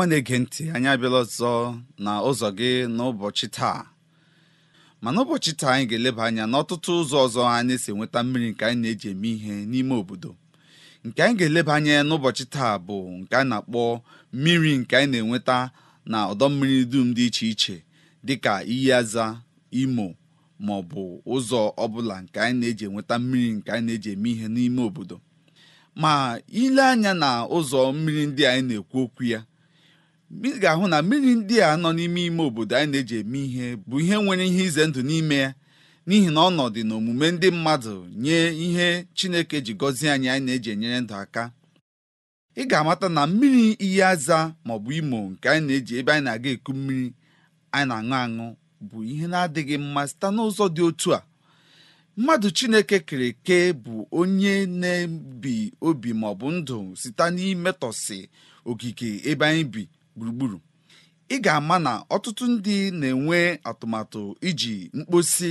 ọma na-ege ntị anyị abịala ọzọ na ụzọ gị n'ụbọchị taa ma n'ụbọchị taa anyị ga-eleba anya n'ọtụtụ ụzọ ọzọ anyị si enweta mmiri nke anyị na-eji eme ihe n'ime obodo nke anyị ga-eleba anya n'ụbọchị taa bụ nke a na-akpọ mmiri nke anyị na-enweta na ọdọ mmiri dum dị iche iche dịka iyi aza imo ma ọ bụ ụzọ ọbụla nke anyị na-eji enweta mmiri nke anyị na-eji eme ihe n'ime obodo ma ile anya na ụzọ mmiri ndị anyị na-ekwu okwu ya ị ga-ahụ na mmiri ndị a nọ n'ime ime obodo anyị na-eji eme ihe bụ ihe nwere ihe ize ndụ n'ime ya n'ihi na ọnọdụ na omume ndị mmadụ nye ihe Chineke ji gọzie anyị anyị na-eji enyere ndụ aka ị ga-amata na mmiri iyi aza maọbụ imo nke anyị na-eji ebe anyị na-aga eku mmiri anyị na-aṅụ aṅụ bụ ihe na-adịghị mma site n'ụzọ dị otu a mmadụ chineke kere eke bụ onye na-ebi obi maọbụ ndụ site n'imetọsị ogige ebe anyị bi gburugburu ị ga-ama na ọtụtụ ndị na-enwe atụmatụ iji mkposi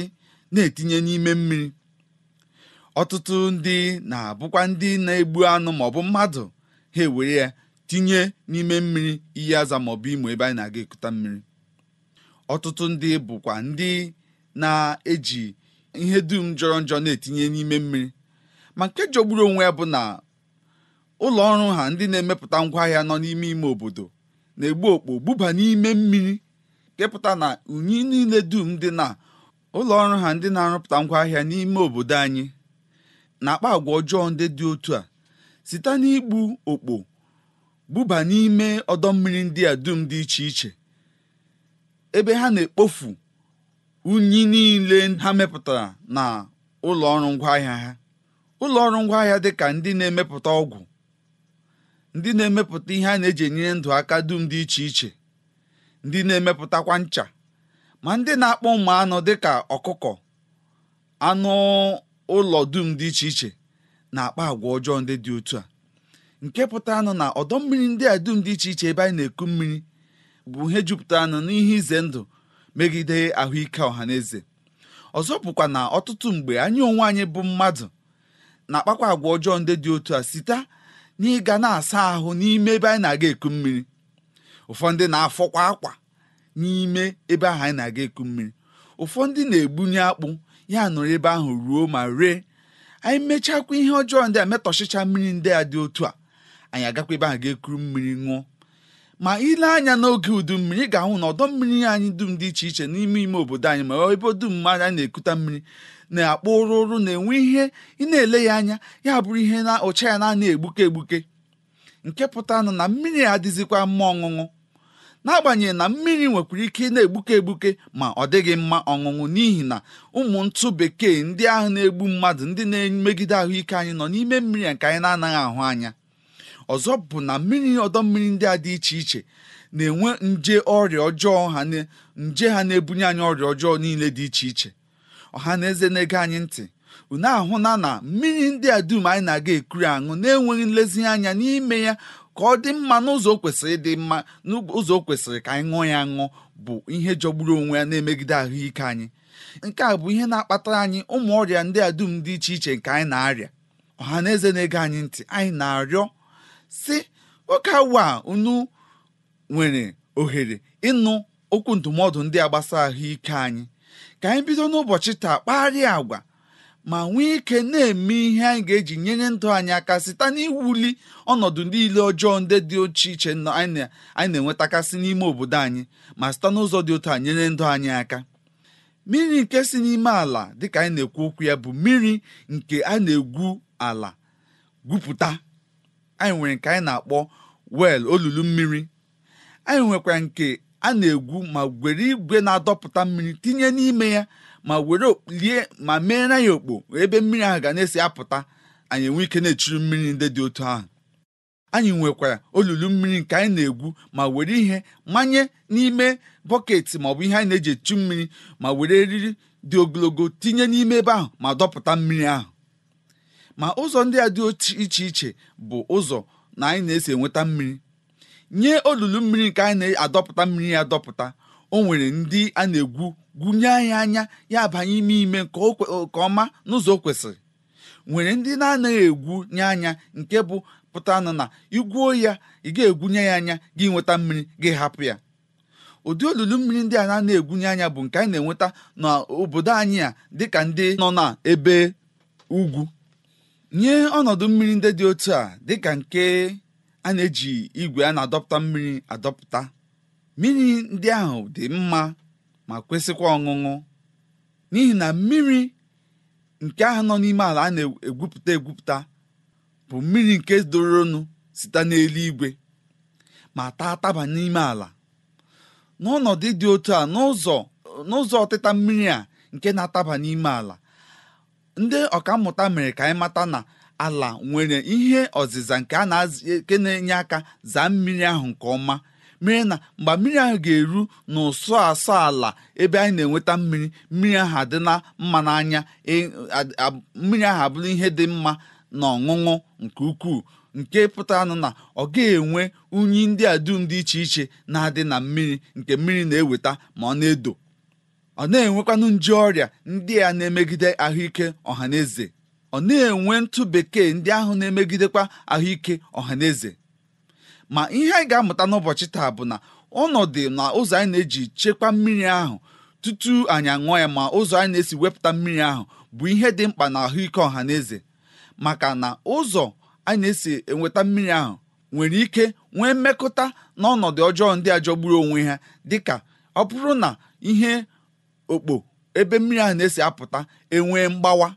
na-etinye n'ime mmiri ọtụtụ ndị na-abụkwa ndị na-egbu anụ maọbụ mmadụ ha ewere ya tinye n'ime mmiri iyi aza maọbụ imo ebe anyị na-aga ekuta mmiri ọtụtụ ndị bụkwa ndị na-eji ihe dum jọrọ njọ na-etinye n'ime mmiri ma nke jọgburu onwe ya bụ na ụlọ ọrụ ha ndị na-emepụta ngwaahịa nọ n'ime ime obodo na-egbu okpo buba n'ime mmiri kepụta na unyi niile dum dị na ụlọọrụ ha ndị na-arụpụta ngwaahịa n'ime obodo anyị na-akpa agwa ọjọọ ndị dị otu a site n'igbu okpo buba n'ime ọdọ mmiri ndị a dum dị iche iche ebe ha na-ekpofu unyi niile ha mepụtara na ụlọ ọrụ ngwaahịa ha ụlọ ọrụ ngwaahịa dị ka ndị na-emepụta ọgwụ ndị na-emepụta ihe a na-eji enyere ndụ aka dum dị iche iche ndị na-emepụtakwa ncha ma ndị na-akpọ ụmụ anụ dịka ọkụkọ anụ ụlọ dum dị iche iche na-akpa agwa ọjọọ ndị dị otu a nke pụtara nụ na ọdọ mmiri ndị a dum dị iche iche ebe anyị na-eku mmiri bụ ihe jupụtara nụ n'ihe ize ndụ megide ahụike ọha na eze ọzọ bụkwa na ọtụtụ mgbe anyị onwe anyị bụ mmadụ na-akpakwa agwa ọjọọ ndị dị otu a site n'ịga na-asa ahụ n'ime ebe anyị na-aga eku mmiri ụfọdụ na-afọkwa akwa n'ime ebe ahụ anyị na-aga eku mmiri ụfọdụ na-egbunye akpụ ya nọrọ ebe ahụ ruo ma ree anyị mechakwa ihe ọjọọ ndị a metọchicha mmiri ndị a dị otu a anyị agakwa ebe ahụ ga-ekuru mmiri ṅụọ ma ile anya n'oge udu mmiri ga-ahụ na ọdọ mmiri anyị dum dị iche iche n'ime ime obodo anyị ma ebe dum anyị na-ekuta mmiri na-akpọ ụrụ na-enwe ihe ị na-ele ya anya ya bụrụ ihe na ụcha ya na-ana egbuke egbuke nke pụtanụ na mmiri adịzikwa mma ọṅụṅụ n'agbanyeghị na mmiri nwekwara ike na-egbuke egbuke ma ọ dịghị mma ọṅụṅụ n'ihi na ụmụ ntụ bekee ndị ahụ na-egbu mmadụ ndị na-emegide ahụike anyị nọ n'ime mmiri nke anyị na-anaghị ahụ anya ọzọ bụ na mmiri ọdọ mmiri ndị a dị iche iche na-enwe nje ọrịa ọjọọ ha nje ha na-ebunye anyị ọrịa ọjọọ niile dị iche iche ọha na eze na-ege anyị ntị unu ahụna na mmiri ndị a dum anyị na-aga ekuru aṅụ na-enweghị nlezianya n'ime ya ka ọ dị mma n'ụzọ kwesịrị ịdị mma n'ụzọ kwesịrị ka anyị ṅụọ ya ṅụ bụ ihe jọgburu onwe ya na-emegide ahụike anyị nke a bụ ihe na-akpatara anyị ụmụ ọrịa ndị a dum dị iche iche nke anyị na-arịa ọha na eze na-ege anyị ntị anyị na-arịọ si oke awa a unu nwere ohere ịnụ okwu ndụmọdụ ndị a gbasara ahụike anyị ka anyị bido n'ụbọchị taa kparịa agwa ma nwee ike na-eme ihe anyị ga-eji nyere ndụ anyị aka site n'iwuli ọnọdụ niile ọjọọ ndị dị oche iche anyị na-enwetakasị n'ime obodo anyị ma site n'ụzọ dị otu a nyere ndụ anyị aka mmiri nke si n'ime ala dịka anyị na-ekwu okwu ya bụ mmiri nke a na-egwu ala gwupụta anyị nwere nke anyị na-akpọ wel olulu mmiri anyị nwekwara nke a na-egwu ma were igwe na-adọpụta mmiri tinye n'ime ya ma were lie ma meere ya okpo ebe mmiri ahụ ga na-esi apụta anyị enwe ike na-echiri mmiri ndị dị otu ahụ anyị nwekwara olulu mmiri nke anyị na-egwu ma were ihe manye n'ime bọket maọbụ ihe anyị na-eji echu mmiri ma were eriri dị ogologo tinye n'ime ebe ahụ ma dọpụta mmiri ahụ ma ụzọ ndị a dị iche iche bụ ụzọ na anyị na-esi enweta mmiri nye olulu mmiri nke anyị na-adọpụta mmiri ya adọpụta o nwere ndị a na-egwu gwunye anyị anya ya abanye ime ime nke ọma n'ụzọ o kwesịrị nwere ndị na-anaghị egwu nye anya nke bụ pụta na igwuo ya ị ga-egwunye ya anya gị nweta mmiri gị hapụ ya ụdị olulu mmiri ndị a na-egwunye anya bụ nke anyị na-enweta n'obodo anyị a dịka ndị nọ na ebe ugwu nye ọnọdụ mmiri ndị dị otu a dịka nke a na-eji igwe a na-adọpụta mmiri adọpụta mmiri ndị ahụ dị mma ma kwesịkwa ọṅụṅụ n'ihi na mmiri nke ahụ nọ n'ime ala a na-egwupụta egwupụta bụ mmiri nke doro doronu site n'eluigwe ma taa taba n'ime ala n'ọnọdụ dị otu a n'ụzọ n'ụzọ ọtịta mmiri a nke na-ataba n'ime ala ndị ọkammụta mere ka anyị mata na ala nwere ihe ọzịza nke a na na-enye aka zaa mmiri ahụ nke ọma mmiri na mgbe mmiri ahụ ga-eru n'ụsọ asọ ala ebe anyị na-enweta mmiri mmiri ahụ adịla mma n'anya e, mmiri ahụ abụrụ ihe dị mma na ọṅụṅụ nke ukwuu nke pụtara na ọ ga-enwe unyi ndị a dum dị iche iche na-adị na mmiri nke mmiri na-eweta ma ọ na-edo ọ na-enwekwanụ nje ọrịa ndị a na-emegide ahụike ọha na eze ọ na-enwe ntụ bekee ndị ahụ na-emegidekwa ahụike ọha ma ihe anyị ga-amụta n'ụbọchị taa bụ na ọnọdụ na ụzọ anyị na-eji chekwa mmiri ahụ tutu anyị aṅụọ ya ma ụzọ anyị na-esi wepụta mmiri ahụ bụ ihe dị mkpa na ahụike ọha maka na ụzọ anyị na-esi enweta mmiri ahụ nwere ike nwee mmekọta ọnọdụ ọjọọ ndị a jọgburu onwe ha dịka ọ bụrụ na ihe okpo ebe mmiri ahụ na-esi apụta enwee mgbawa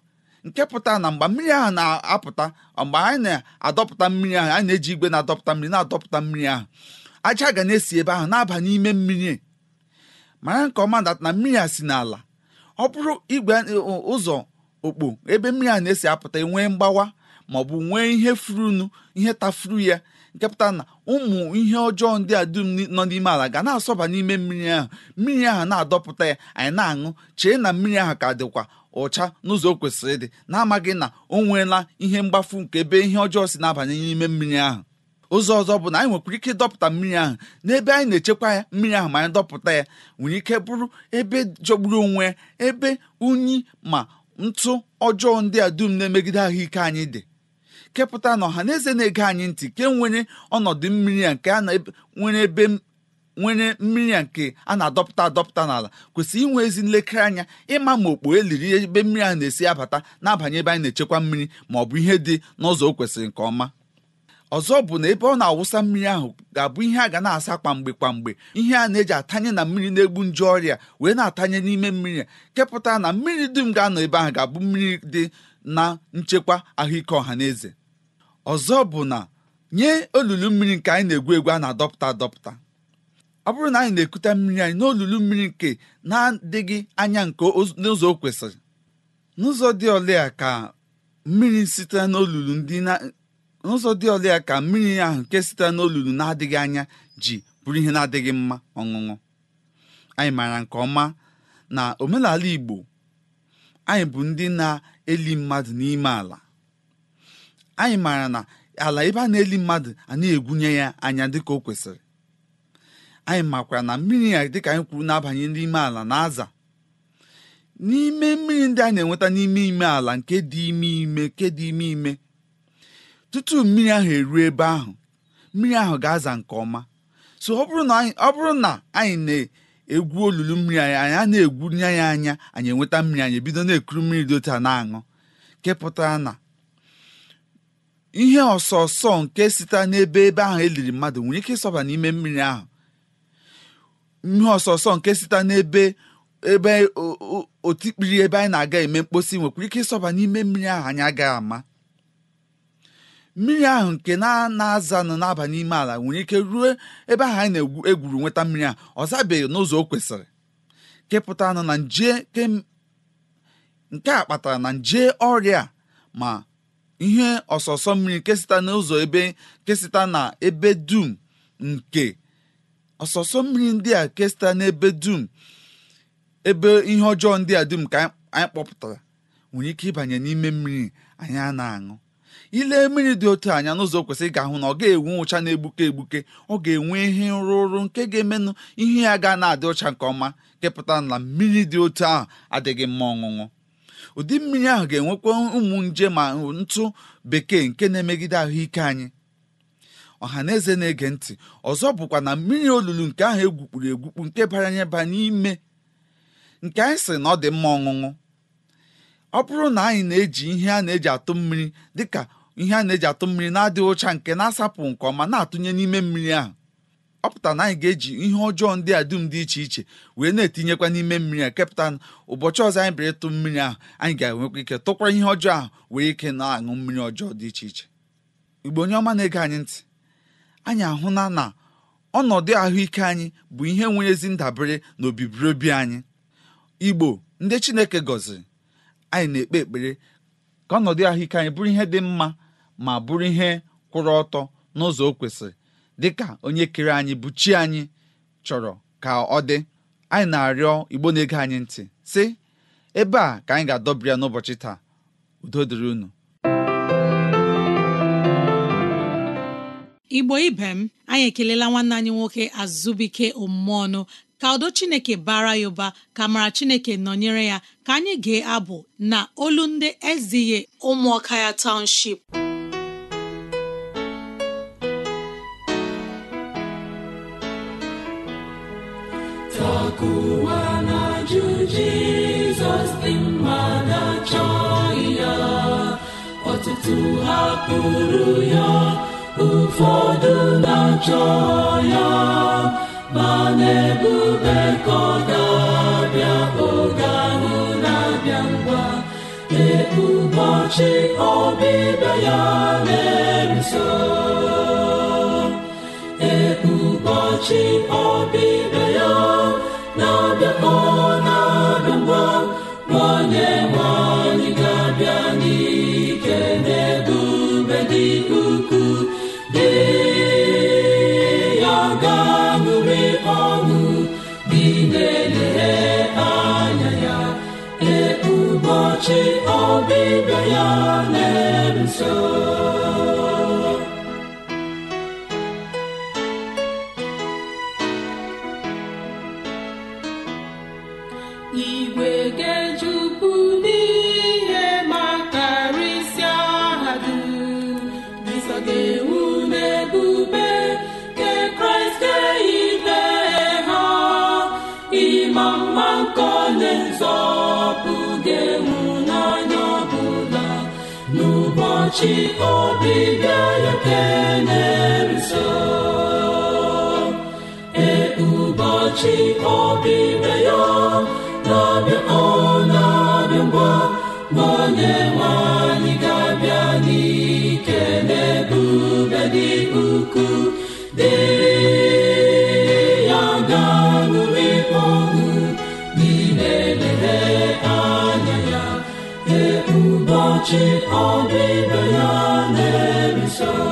nke pụta na mgbe mmiri ahụ na-apụta mgbe anyị na-adọpụta mmiri ahụ anyị na-eji igwe na-adọpụta mmiri na-adọpụta mmiri ahụ aja ga na-esi ebe ahụ na-aba n'ime mmiri mara nke ọma na mmiri a si n'ala ọ bụrụ igwe ụzọ okpo ebe mmiri a na-esi apụta enwee mgbawa ma ọ bụ nwee ihe furunu ihe tafuru ya nke na ụmụ ihe ọjọọ ndị a dum nọ n'ime ala ga na-asọba n'ime mmiri ahụ mmiri ahụ na-adọpụta ya anyị na-aṅụ chee na mmiri ahụ ka dịkwa ụcha n'ụzọ o kwesịrị ịdị na-amaghị na o nweela ihe mgbafu nke ebe ihe ọjọọ si na-abanye n'ime mmiri ahụ ụzọ ọzọ bụ na anyị nwekwara ike dọpụta mmiri ahụ n'ebe anyị na-echekwa ya mmiri ahụ ma anyị dọpụta ya nwere ike bụrụ ebe jọgburu onwe ya ebe unyi ma ntụ ọjọọ ndị a dum na-emegide ahụike anyị dị kepụta na ọha na eze na-ege anyị ntị ke nwere ọnọdụ mmiri a nke a na nwere ebe nwere mmiri a nke a na-adọpụta adọpụta n'ala kwesịrị inwe ezi nlekere anya ịma ma okpo eliri ebe mmiri a na-esi abata na-abanye ebe anyị na-echekwa mmiri ma ọ bụ ihe dị n'ụzọ o kwesịrị nke ọma ọzọ bụ na ebe ọ na-awụsa mmiri ahụ ga-abụ ihe a ga na-asa kwamgbe kwamgbe ihe a na-eji atanye na mmiri na-egbu nje ọrịa wee na-atanye n'ime mmiri kepụta na mmiri dum ga-anọ ebe ahụ ga-abụ mmiri dị na nchekwa ahụike ọha na eze ọzọ bụ na nye olulu mmiri nke anyị na-egwu egwu a na-adọpụta adọpụta ọ bụrụ na anyị na-ekute mmiri anyị n'olulu mmiri nke na-adịghị anya nke n'ụzọ o kwesịrị n'ụzọ dị ole a ka mmiri sitere n'olulu ndị n'ụzọ dị ole ka mmiri ahụ nke sitere n'olulu na-adịghị anya ji bụrụ ihe na-adịghị mma ọṅụṅụ anyị maara nke ọma na omenala Igbo anyị bụ ndị na-eli mmadụ n'ime ala anyị maara na ala ebe a na-eli mmadụ a na-egwunye ya anya dịka o kwesịrị anyị makwara na mmiri a dịka anyị kwuru na-abanye n'ime ala na-aza n'ime mmiri ndị a na-enweta n'ime ime ala nke dị ime ime nke dị ime ime tutu mmiri ahụ eruo ebe ahụ mmiri ahụ ga-aza nke ọma so ọ bụrụ na anyị na-egwu olulu mmiri anyị anyị na-egwunye ya anya anyị enweta mmiri anyị ebido na-ekuru mmiri dị otu na-aṅụ kepụtara na ihe ọsọ nke sitere n'ebe ebe ahụ eliri mmadụ nwere ike ịsọba n'ime mmiri ahụ ihe ọsọsọ nke site n'ebe ebe otikpiri ebe anyị na-aga eme mkposi nwekwara ike ịsọba n'ime mmiri ahụ anyị agaghị ama mmiri ahụ nke na-azanụ na n'aba n'ime ala nwere ike ruo ebe ahụ anyị na-egwuru nweta mmiri a ọ zabeghị n'ụzọ o kwesịrị kepụta nọ na nje nke a kpatara na nje ọrịa ma ihe ọsọsọ mmiri nke site n'ụzọ ebe kesịta na ebe dum nke ọsọsọ mmiri ndị a kesta n'ebe dum ebe ihe ọjọọ ndị a dum ka anyị kpọpụtara nwere ike ịbanye n'ime mmiri anyị a na-aṅụ ile mmiri dị otu anya n'ụzọ kwesịrị ga-ahụ na ọ ga-enwe ụcha na-egbuke egbuke ọ ga-enwe ihe nrụrụ nke ga-emenụ ihe ya ga na-adị ụcha nke ọma kepụta na mmiri dị otu ahụ adịghị mma ọṅụṅụ ụdị mmiri ahụ ga-enwekwa ụmụ nje ma ntụ bekee nke na-emegide ahụike anyị Ọha na-ege eze na ntị ọzọ bụkwa na mmiri olulu nke ahụ egwukpuru egwukpu nke baranye ba n'ime nke anyị sị na ọ dị mma ọṅụṅụ ọ bụrụ na anyị na-eji ihe a na-eji atụ mmiri dịka ihe a na-eji atụ mmiri na-adịghị ụcha nke na-asapụ nke ọma na-atụnye n'ime mmiri ahụ ọ pụtara na anyị ga-eji ihe ọjọọ ndị a dum dị iche iche wee na-etinyekwa n'ime mmiri a kepụta ụbọchị ọzọ anyị bịara ịtụ mmiri ahụ anyị ga-enwekwa ike tụkwara ihe ọjọọ ahụ wee ike na-aṅụ mmiri ọjọọ dị iche iche igbo onye ọma na-ege anyị ntị anyị ahụla na ọnọdụ ahụike anyị bụ ihe nwere ezi ndabere na anyị igbo ndị chineke gọziri anyị na-ekpe ekpere ka ọnọdụ ahụike anyị bụrụ ihe dị mma ma bụrụ ihe kwụrụ ọtọ n'ụzọ o kwesịrị dịka onye kere anyị bụ chi anyị chọrọ ka ọ dị anyị na-arịọ igbo na-ege anyị ntị sị ebe a ka anyị ga-adọbịa n'ụbọchị taa udo dịrị unu igbo ibe m anyị ekelela nwanne anyị nwoke azụbike omume ọnụ ka udo chineke bara ya ụba ka mara chineke nọnyere ya ka anyị gee abụ na olu ndị eziye ụmụọka ya township na ya ọtụtụ hapụrụ ụfọdụ na-achọ ya ma na-ebube ka ọ ga-abịa oge ahụ na-abịa ngwa ee ọbịbịa ya na-eruso ee ọbịbịa ya na-abịa ụbọchị ọbịbịa ya na-eso igwe ga ụbọchị ọbịbịa ya keneruso ee ụbọchị ọbịbịa ya na-abịa ọ na-abịa ngwa onye nwanyị ga-abịa n'ike ọchị ọbịbịa ya na-ebiso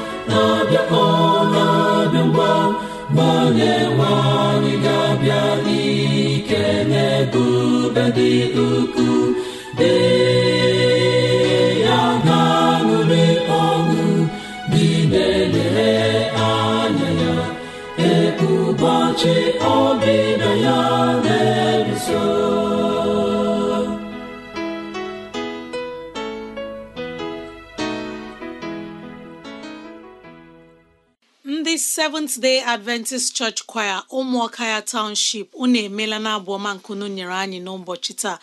na-abịa ngwa onye nwe ga-abịa na-ebube dị ukwuu ya ga-aṅụrị ọṅụ dị na-elere anya ya ee ụbọchị ya na so. Seventh Day Adventist Church Choir ụmụọka ya Township unu emela na abụ ọma nkunu nyere anyị n'ụbọchị taa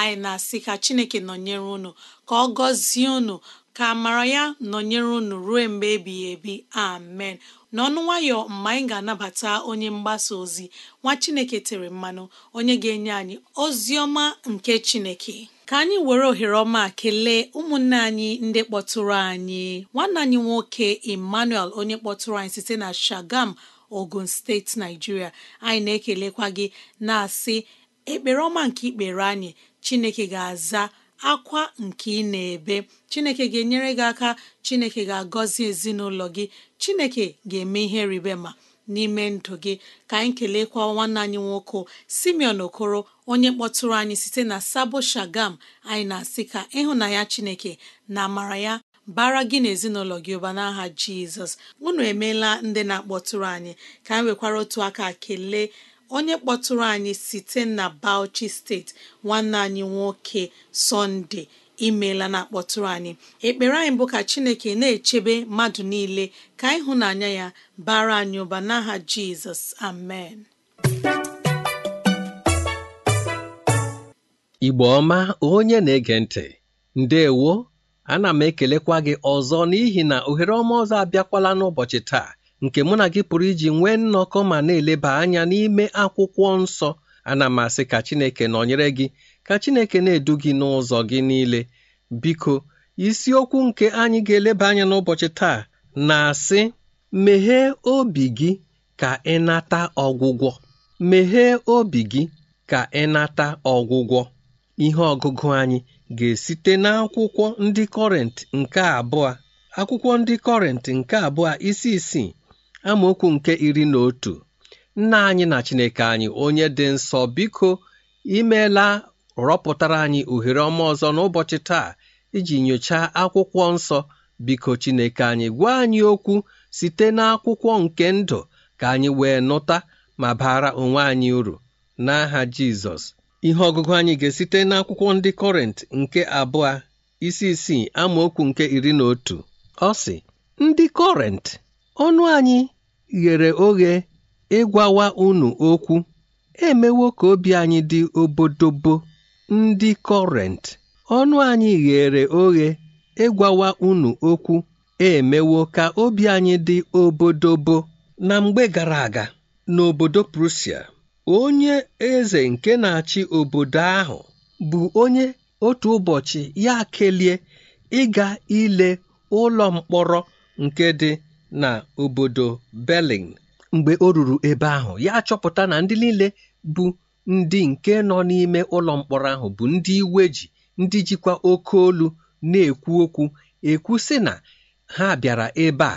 anyị na-asị ka Chineke nọnyere unu ka ọ gọzie unu ka amara ya nọnyere unu ruo mgbe ebighị ebi amen n'ọnụ nwayọ mgbe anyị ga-anabata onye mgbasa ozi nwa Chineke tere mmanụ onye ga-enye anyị ozi ọma nke Chineke ka anyị were ohere ọma kelee ụmụnne anyị ndị kpọtụrụ anyị nwanne anyị nwoke Emmanuel onye kpọtụrụ anyị site na Shagam Ogun steeti Naijiria anyị na-ekelekwa gị na-asị ekpere ọma nke ikpere anyị Chineke ga-aza akwa nke ị na-ebe Chineke ga-enyere gị aka Chineke ga-agọzi ezinụlọ gị Chineke ga-eme ihe ribema n'ime ndụ gị ka anyị keleekwa nwanne anyị nwoke simeon okoro onye kpọtụrụ anyị site na sabo shagam anyị na-asị ka ịhụnanya chineke na amara ya bara gị na ezinụlọ gị ụba n'aha jizọs unu emeela ndị na-akpọtụrụ anyị ka anyị nwekwara otu aka kelee onye kpọtụrụ anyị site na bauchi steeti nwanne anyị nwoke sọnde imeela na akpọtụrụ anyị ekpere anyị bụ ka chineke na-echebe mmadụ niile ka ịhụnanya ya bara anyị ụba n'aha jizọs amen igbo ọma onye na-ege ntị ndewo ana m ekelekwa gị ọzọ n'ihi na ohere ọma ọzọ abịakwala n'ụbọchị taa nke mụ na gị pụrụ iji nwee nnọkọ ma na-eleba anya n'ime akwụkwọ nsọ ana m asị ka Chineke nọnyere gị ka Chineke na-edu gị n'ụzọ gị niile biko isiokwu nke anyị ga-eleba anya n'ụbọchị taa na-asị meghee obi gị ka ị nata ọgwụgwọ meghee obi gị ka ị nata ọgwụgwọ ihe ọgụgụ anyị ga-esite n'akwụkwọ ndị kọrent nke abụọ akwụkwọ ndị kọrent nke abụọ isi isii amaokwu nke iri na otu nna anyị na Chineke anyị onye dị nsọ biko imeela rọpụtara anyị ohere ọma ọzọ n'ụbọchị taa iji nyochaa akwụkwọ nsọ biko Chineke anyị gwa anyị okwu site n'akwụkwọ nke ndụ ka anyị wee nụta ma bara onwe anyị uru n'aha Jizọs ihe ọgụgụ anyị ga-esite n'akwụkwọ ndị Kọrint nke abụọ isi isii amaokwu nke iri na otu ọ sị ndị Kọrent ọnụ anyị ghere oghe ịgwawa unu okwu emewo ka obi anyị dị obodobo ndị Kọrent, ọnụ anyị ghere oghe ịgwawa unu okwu emewo ka obi anyị dị obodo bụ na mgbe gara aga n'obodo prusia. onye eze nke na-achị obodo ahụ bụ onye otu ụbọchị ya kelie ịga ile ụlọ mkpọrọ nke dị na obodo Berlin mgbe o ruru ebe ahụ ya chọpụta na ndị niile bụ ndị nke nọ n'ime ụlọ mkpọrọ ahụ bụ ndị iwe ji ndị jikwa oke olu na-ekwu okwu ekwu sị na ha bịara ebe a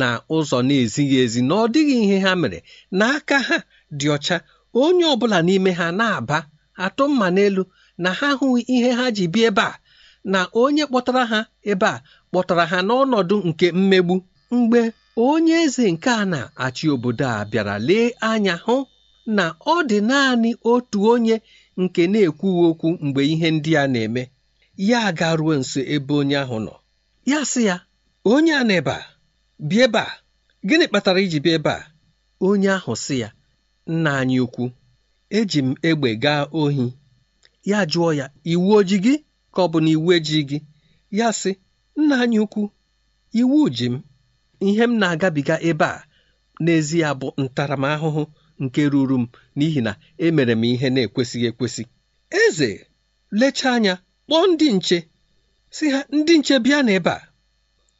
na ụzọ na-ezighị ezi na ọ dịghị ihe ha mere n'aka ha dị ọcha onye ọbụla n'ime ha na-aba atụ mma n'elu na ha hụghị ihe ha ji bịa ebe a na onye kpọtara ha ebe a kpọtara ha n'ọnọdụ nke mmegbu mgbe onye eze nke a na-achị obodo a bịara lee anya hụ na ọ dị naanị otu onye nke na-ekwughị okwu mgbe ihe ndị a na-eme ya garuo nso ebe onye ahụ nọ ya sị ya onye a na-ebe a bịa ebe a gịnị kpatara iji bịa ebe a onye ahụ sị ya nna anyị ukwu eji m egbe gaa ohi ya jụọ ya iwu oji gị ka ọ bụ na iwu eji gị ya sị nna anyị ukwu iwu ji m ihe m na-agabiga ebe a n'ezie bụ ntaramahụhụ nke ruru m n'ihi na emere m ihe na-ekwesịghị ekwesị eze lechaa anya kpọọ ndị nche si ha ndị nche bịa n'ebe a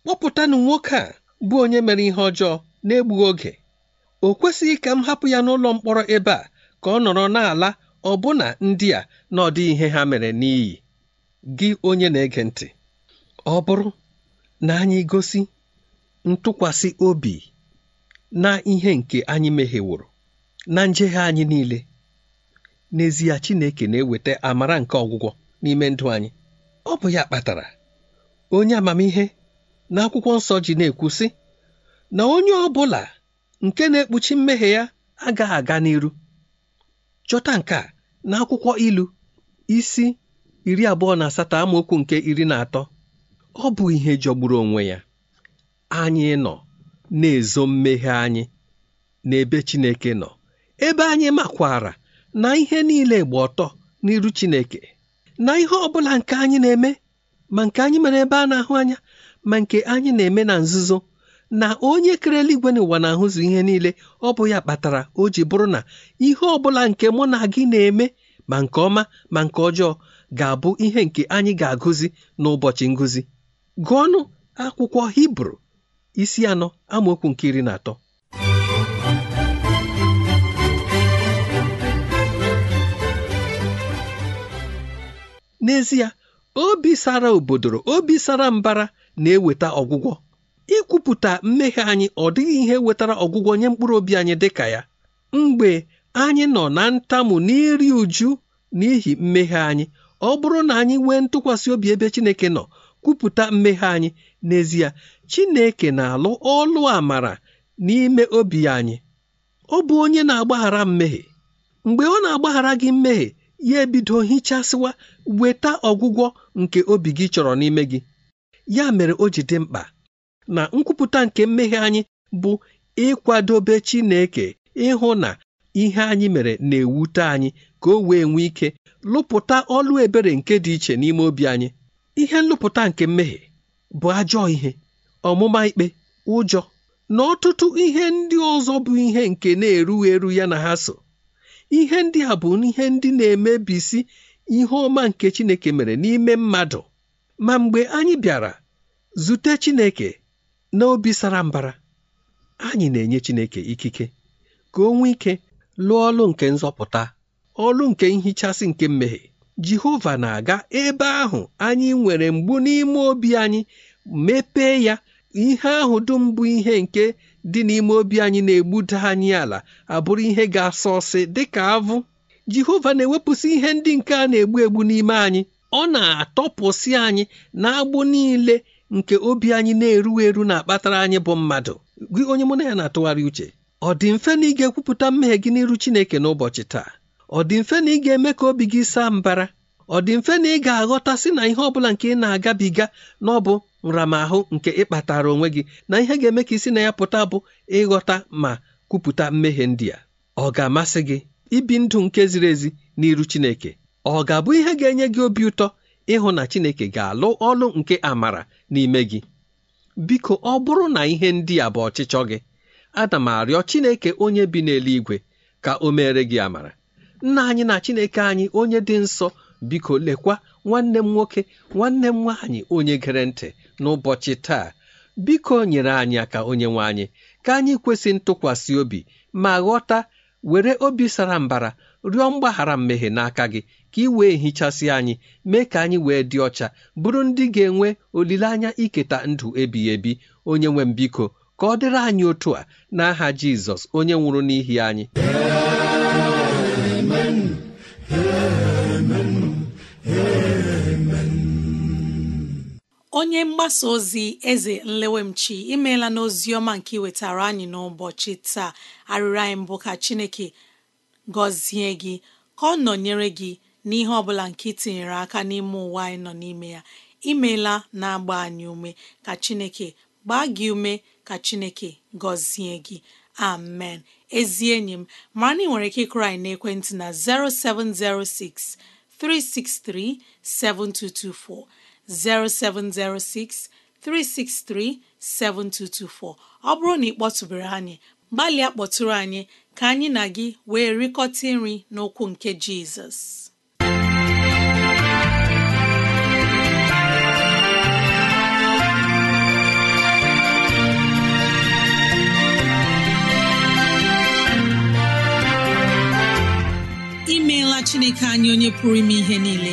kpọpụtanụ nwoke a bụ onye mere ihe ọjọọ na-egbughị oge o kwesịghị ka m hapụ ya n'ụlọ mkpọrọ ebe a ka ọ nọrọ n'ala ọbụna ndị a na ihe ha mere n'iyi gị onye na-ege ntị ọ bụrụ na anyị gosi ntụkwasị obi na ihe nke anyị mehiworo na njehie anyị niile n'ezie Chineke na-eweta amara nke ọgwụgwọ n'ime ndụ anyị ọ bụ ya kpatara onye amamihe na akwụkwọ nsọ ji na-ekwu sị na onye ọ bụla nke na-ekpuchi mmehie ya agaghị aga n'iru chọta nke a na akwụkwọ ilu isi iri abụọ na asatọ amaokwu nke iri na atọ ọ bụ ihe jọgburu onwe ya anyị nọ na-ezo mmehie anyị n'ebe Chineke nọ ebe anyị makwara na ihe niile gba ọtọ n'iru Chineke na ihe ọbụla nke anyị na-eme ma nke anyị mere ebe a na-ahụ anya ma nke anyị na-eme na nzuzo na onye kere eluigwe n'ụwa na-ahụzụ ihe niile ọ bụ ya kpatara o ji bụrụ na ihe ọbụla nke mụ na gị na-eme ma nke ọma ma nke ọjọọ ga-abụ ihe nke anyị ga-agụzi n'ụbọchị ngụzi gụọnụ akwụkwọ Hibru isi anọ amaokwu nke iri na atọ n'ezie obi sara obodoro obi sara mbara na-eweta ọgwụgwọ ikwupụta mmehie anyị ọ dịghị ihe wetara ọgwụgwọ nye mkpụrụ obi anyị dị ka ya mgbe anyị nọ na ntamu n'iri uju n'ihi mmehie anyị ọ bụrụ na anyị nwee ntụkwasị obi ebe Chineke nọ kwupụta mmehie anyị n'ezie Chineke na-alụ ọlụ amara n'ime obi anyị ọ bụ onye na-agbaghara mmehie mgbe ọ na-agbaghara gị mmehie ya ebido hichasịwa weta ọgwụgwọ nke obi gị chọrọ n'ime gị ya mere o ji dị mkpa na nkwupụta nke mmehie anyị bụ ịkwadobe Chineke ịhụ na ihe anyị mere na-ewute anyị ka o wee nwee ike lụpụta ọlụ ebere nke dị iche n'ime obi anyị ihe nlụpụta nke mmehie bụ ajọ ihe ọmụma ikpe ụjọ na ọtụtụ ihe ndị ọzọ bụ ihe nke na-erughị eru ya na ha so ihe ndị a bụ ihe ndị na-emebisi ihe ọma nke chineke mere n'ime mmadụ ma mgbe anyị bịara zute chineke na sara mbara anyị na-enye chineke ikike ka o ike lụọ ọlụ nke nzọpụta ọlụ nke nhichasị nke mmehie jehova na-aga ebe ahụ anyị nwere mgbu n'ime obi anyị mepee ya ihe ahụ dum bụ ihe nke dị n'ime obi anyị na-egbuda anyị ala abụrụ ihe ga-asọ ọsị dịka avụ jehova na-ewepụsị ihe ndị nke a na-egbu egbu n'ime anyị ọ na-atọpụsị anyị na agbụ niile nke obi anyị na-eru eru na-akpatara anyị bụ mmadụ gị onye mụ na ya na-atụgharị uche ọ dị mfe na ị ga-ekwupụta mmehie gị n'iru Chineke n'ụbọchị taa ọ dị mfe na ị ga-eme ka obi gị saa mbara ọ dị mfe na ị ga-aghọta sị na ihe ọ bụla nke ị na-agabiga na ọ bụ nramahụ nke ịkpatara onwe gị na ihe ga-eme ka isi na ya pụta bụ ịghọta ma kwupụta mmehie ndị a ọ ga-amasị gị ibi ndụ nke ziri ezi n'iru Chineke ọ ga-abụ ihe ga-enye gị obi ụtọ ịhụ na Chineke ga-alụ ọlụ nke amara n'ime gị biko ọ bụrụ na ihe ndị a bụ ọchịchọ gị ana m arịọ Chineke onye bi n'eluigwe ka o mere gị amara nna anyị na Chineke anyị onye dị nsọ biko lekwa nwanne m nwoke nwanne m nwaanyị onye gere ntị n'ụbọchị taa biko nyere anyị aka onye nwaanyị anyị ka anyị kwesị ntụkwasị obi ma ghọta were obi sara mbara rịọ mgbaghara mmehie n'aka gị ka ị wee hichasị anyị mee ka anyị wee dị ọcha bụrụ ndị ga-enwe olileanya iketa ndụ ebighị ebi onye nwe m biko ka ọ dịrị anyị otu a n'aha Jizọs onye nwụrụ n'ihi anyị onye mgbasa ozi eze nlewemchi imeela n'ozi ọma nke iwetara anyị n'ụbọchị taa arịrịọ anyị mbụ ka chineke gọzie gị ka ọ nọnyere gị n'ihe ọ bụla nke itinyere aka n'ime ụwa anyị nọ n'ime ya imeela na-agba anyị ume ka chineke gbaa gị ume ka chineke gọzie gị amen ezi enyi m mara na ị nwere ike ịkụrụ anyị n'ekwentị na 0706 363 7224 0706 ọ bụrụ na ị kpọtụbere anyị gbalịa kpọtụrụ anyị ka anyị na gị wee rikọta nri n'okwu nke Jizọs imeela Chineke anyị onye pụrụ ime ihe niile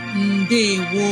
ndewo